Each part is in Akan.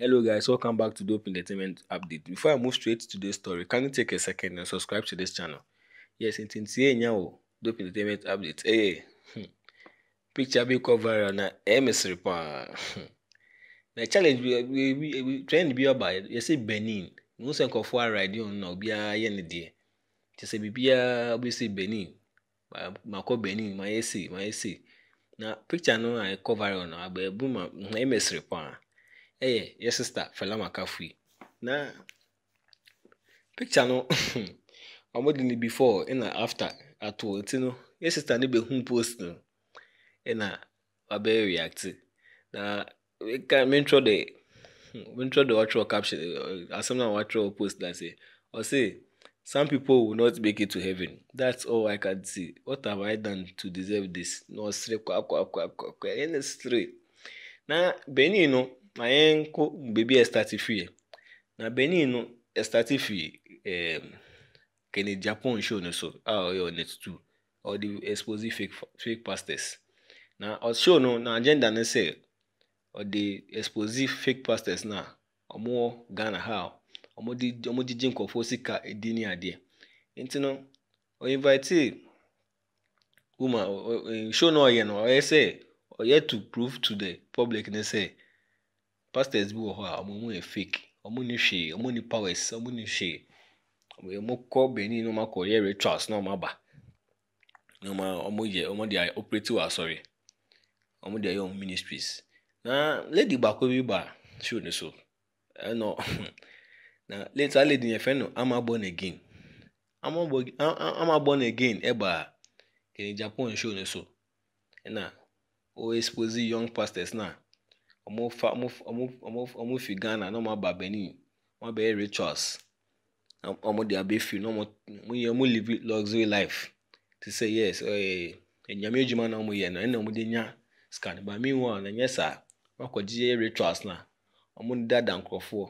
Hello guys, welcome back to Dope Entertainment Update. Before I move straight to today's story, can you take a second and subscribe to this channel? Yes, it's in now. Dope Entertainment Update. Hey, eh, hmm. picture be cover na MS report. Hmm. Na challenge we we we, we trend be about you see Benin. No say nkofo ride on na obi aye ne de. Ti say bibia obi say Benin. Makọ Benin, ma yesi, ma yesi. Na picture no I cover on na abebu ma MS report. Hey, yes, sister, Fela Makafui. Na picture no ọmụ ni before ị na after atụ tino yes sister n'ebe hụ post no ị na abịa react na ka mentro de hmm, mentro de watch caption eh, asem na watch post na say ọ sị some people will not make it to heaven that's all i can see what have i done to deserve this na ọsịrị kwa kwa kwa akwa na-esịrị na benin no na mayenko bi estatifie na benin no kene japan show no so a ɔyɛ onet 2 di expose fake, fake pastors na ɔshow no na agenda no sɛ di expose fake pastors na ɔmo wɔ ghana ha ɔmo di ɔmo gyegye nkɔfoɔ sika edi ne adeɛ nti no ɔinvite woman show no ɔyɛ no ɔyɛ ọ ɔyɛ to prove to the public ne pastors bi wɔ hɔ a wɔn mu yɛ fake wɔn ni hwee wɔn ni powers wɔn ni hwee wɔn kɔ benin na wɔn akɔ yɛ rituals na wɔn aba na wɔn yɛ wɔn de ayɛ asɔre wɔn de ayɛ wɔn ministries na lady baako bi ba show ne so ɛnna na later lady yɛ o ɔmo fi ghana na ɔmo aba benin ɔmo abɛyɛ rituals ɔmo de abɛfiri na ɔmo yɛ ɔmo live luxury life te sɛ yes ɛɛ na ɔmo yɛ no ɛna ɔmo de nya sika meanwhile na nyɛ saa wakɔgye rituals na ɔmo dada nkorɔfoɔ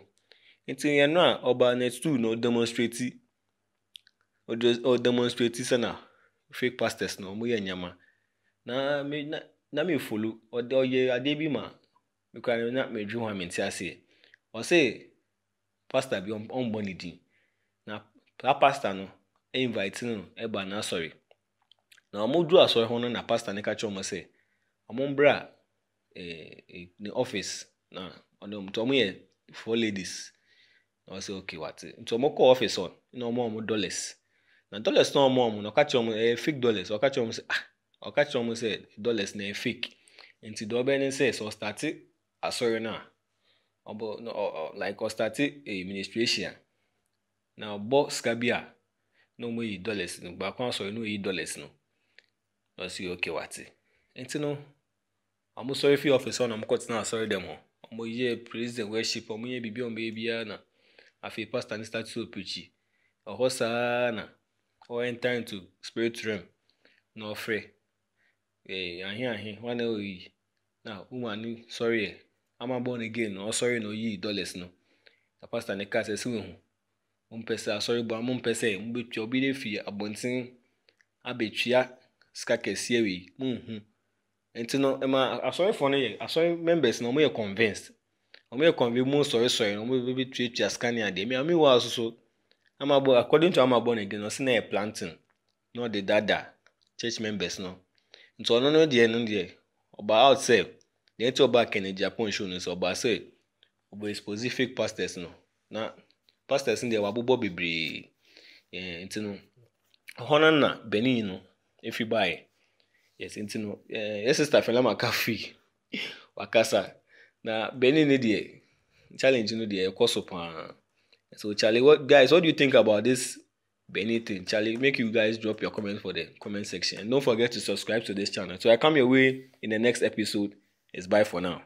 nti yɛn no a na na ɔdemonstrate fake pastors na ɔmo yɛ nyama na na na me folo ɔde ɔyɛ mekura na medwiri ho a mente aseɛ ɔse pastor bi ɔmbɔ ne din na saa pastor no invite no ɛba n'asɔre na wɔn duru asɔre ho no na pastor no ka kyerɛ wɔn sɛ wɔn mbra ɛɛ eh, eh, ne office na ɔno nti wɔn yɛ four ladies na wɔsɛ okay wate nti wɔn kɔ office hɔ na dollars na dollars na ɔka kyerɛ eh, fake dollars ɔka kyerɛ wɔn sɛ ah ɔka kyerɛ wɔn sɛ dollars na ɛyɛ fake nti dɔbɛ ne sɛ sɛ ɔstate. asọrọ eh, na ọbụ bụ like ọstati administration na ọgbọ skabia na ọmọ yìí dọlẹs nù gbà kó asọrọ na yìí dọlẹs nù lọ sí òkè wàtí ẹntì nù ọmọ sọrọ fi ọfíìsì ọ̀nà ọmọkọ tìǹà asọrọ dem ọ ọmọ yìí president worship ọmọ yìí bìbí ọmọ yìí bíyà na afi pastor ní statue opichi ọhọ saa na ọ enter into spirit realm na ọfrẹ ee eh, ahịa ahịa nwanne oyi e e. na ụmụ anị sọrọ ya. ama born again osoye oh, na oyi dollars no na pastor ne ka sɛ sɛ wehu mompɛsɛ asɔre bɔ a mompɛ sɛ mobɛtua obi de fi abɔnten abɛtua sika kɛseɛ wei monhu nti no ɛma asɔrefoɔ no yɛ asɔre members no wɔyɛ convinced wɔyɛ convinced mu sɔresɔre no wɔbɛtuatua sika ne adeɛ mmea mewɔ aso so amabɔ according to amabɔ no again ɔsi na yɛ planting na ɔde dada church members no nti ɔno no deɛ no deɛ ɔba out sɛ The ọba Kennedy Japan no sɛ ɔbaa say, we expose fake pastors no na pastors no deɛ wabobɔ bebree ɛɛ nti no hɔ no na benin no if you buy yes nti no Yes sister sista Fela McAfee wakasa na benin no deɛ challenge no deɛ ɛkɔ so so Charlie what guys what do you think about this benin thing Charlie make you guys drop your comment for the comment section and don't forget to subscribe to this channel so I come your way in the next episode. It's bye for now.